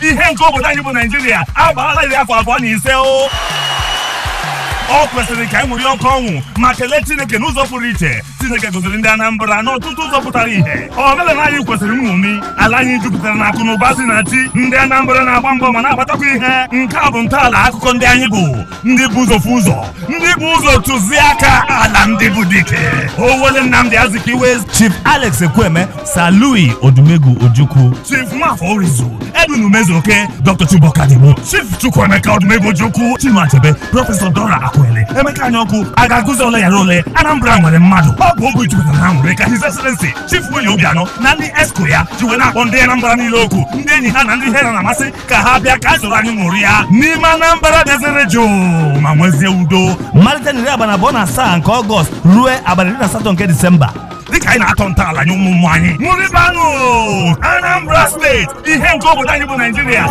一天过不当就不能进的，阿爸那家法官你说哦？ọ kwesịrị ka anyị ṅụrie ọkụ ọnwụ ma kelee Chineke n'ụzọ pụrụ iche Chineke goziri ndị Anambra n'ọtụtụ ụzọ pụtara ihe omenala anyị kwesịrị nṅomi ala anyị jupụtara na akụ na ụba si na chi ndị Anambra na-agba mbọ ma na-agbatakwa ihe nke a bụ ntọala akụkọ ndị anyị bụ ndị bụ ụzọ ụzọ ndị bụ ụzọ tụziaka ala ndị bụ dike Owele Azikiwe Chief Alex Ekweme Salui Odumegwu Ojukwu Chief Nwafọ Orizu Edwin Dr. Chief Chukwuemeka Odumegwu Ojukwu Prọfesọ Dora Akụ Ekwele Emeka Anyaọkụ a ga-agụzi yara ole Anambra nwere mmadụ ọ bụ jupụtara na nwere ka His Excellency Chief obi-anọ na ndị esko ya ji wee na-akpọ ndị Anambra niile okwu ndị enyi ha na ndị ihe na-amasị ka ha bịa ka a zụrụ anyị ṅụrụ ya n'ime Anambra bịazire jụụ ma nwezie udo malite abalị abụọ na asaa nke Ọgọst ruo abalị iri na asatọ nke Disemba dịka anyị na-atọ ntọala nye ụmụ ụmụ anyị Anambra steeti ihe nke obodo anyị bụ Naijiria